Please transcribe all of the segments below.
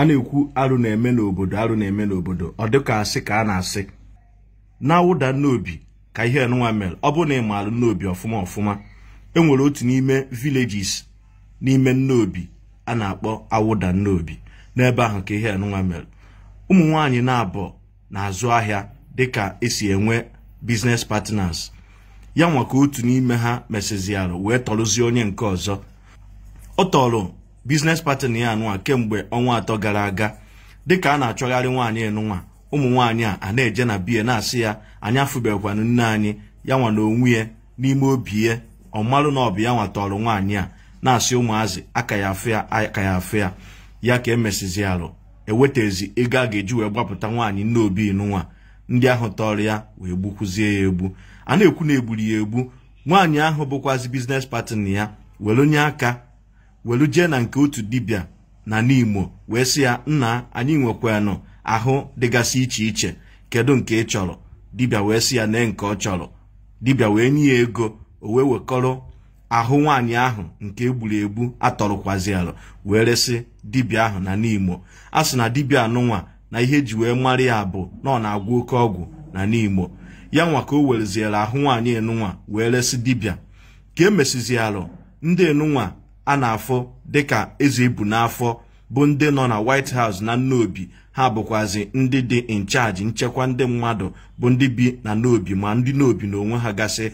a na-ekwu arụ na-eme n'obodo arụ na-eme n'obodo ọ dịka asị ka a na-asị na-awụda nnobi ka ihe nwa mere ọ bụrụ na ị maalụ nnobi ọfụma ọfụma enwere otu n'ime villages n'ime nnobi a na-akpọ awụda nnobi n'ebe ahụ ka ihe nwa mere ụmụ nwaanyị na-abọ na-azụ ahịa dịka esi enwe business partners ya nwa ka otu n'ime ha mesịziarụ wee tọrụzie onye nke ọzọ ọ tọrọ biznes partner ya nụwa kemgbe ọnwa atọ gara aga dịka a na-achọgharị nwaanyị enụnwa ụmụ nwaanyị a na-eje na biya na-asị ya anya afụbekwana nne anyị ya nwa na onwe ya n'ime obi ya ọmarụ na ọbụ ya nwatọrọ nwaanyị a na-asị ụmụazị aka ya afụ ya aka ya afụ ya ya ka emesizi arụ ewetezi ego a ga-eji wee gbapụta nwaanyị nne obi nụnwa ndị ahụ tọrọ ya wee gbukwuzie ya egbu a na-ekwu na egburu ya egbu nwaanyị ahụ bụkwazi biznes patin ya were onye aka welu jee na nke otu dibịa na n'Imo wee sị ya nna anyị nwekwanụ ahụ dịgasị iche iche kedu nke ị chọrọ dibịa wee sị ya nee nke ọ chọrọ dibịa wee nye ya ego o wee wekọrọ ahụ nwaanyị ahụ nke egburu egbu atọrọkwazi wee resị dibịa ahụ na n'Imo a sị na dibịa anụnwa na ihe eji wee mara ya bụ na ọ na-agwụ oke ọgwụ na n'Imo ya nwa ka o wereziere ahụ nwaanyị enunwa wee resị dibịa ka e alụ ndị enunwa. a na-afụ dịka eze ebu n'afọ bụ ndị nọ na White House na Nnobi ha bụkwazị ndị dị incharge nchekwa ndị mmadụ bụ ndị bi na Nnobi ma ndị n'obi na onwe ha gasị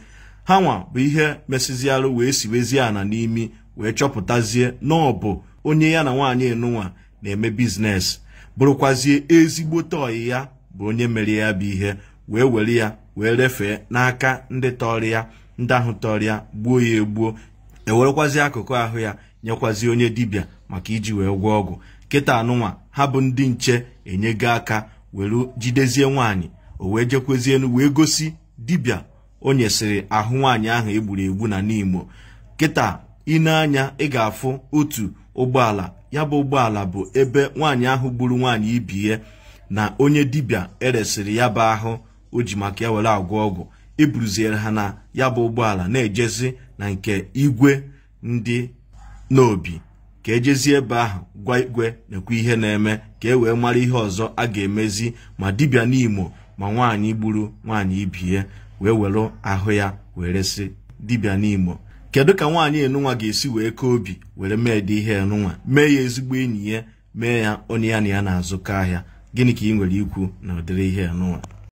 ha nwa bụ ihe mesịziarụ wee siwezie ana n'imi wee chọpụtazie na ọ bụ onye ya na nwaanyị enunwa na-eme biznes bụrụkwazie ezigbo ọyị ya bụ onye mere ya bụ ihe wee were ya wee refee n'aka ndị tọrọ ya ndị ahụ tọrọ ya gbuo ya egbuo ewerekwazi akụkụ ahụ ya nyekwazi onye dibịa maka iji wee gwọọ ọgwụ kịta anụnwa ha bụ ndị nche enyego aka were jidezie nwaanyị o wee jekwezie wee gosi dibịa o nyesịrị ahụ nwaanyị ahụ egburu egbu na n'imo kịta ine anya ị ga-afụ otu ụgbọala ya bụ ụgbọala bụ ebe nwaanyị ahụ gburu nwaanyị ibi na onye dibịa eresịrị ya bụ ahụ o ji maka ya were agwọ ọgwụ eburuziere ha na ya bụ ụgbọala na-ejezi na nke igwe ndị n'obi ka ejezie ebe ahụ gwa igwe n'ekwu ihe na-eme ka e wee mara ihe ọzọ a ga-emezi ma dibịa n'Imo ma nwaanyị gburu nwaanyị ibie wee were ahụ ya were resị dibịa n'Imo kedu ka nwaanyị enunwa ga-esi wee kee obi were mee dị ihe enunwa mee ya ezigbo enyi ya mee ya onye ya na ya na-azụkọ ahịa gịnị ka ị nwere ikwu na ụdịrị ihe enunwa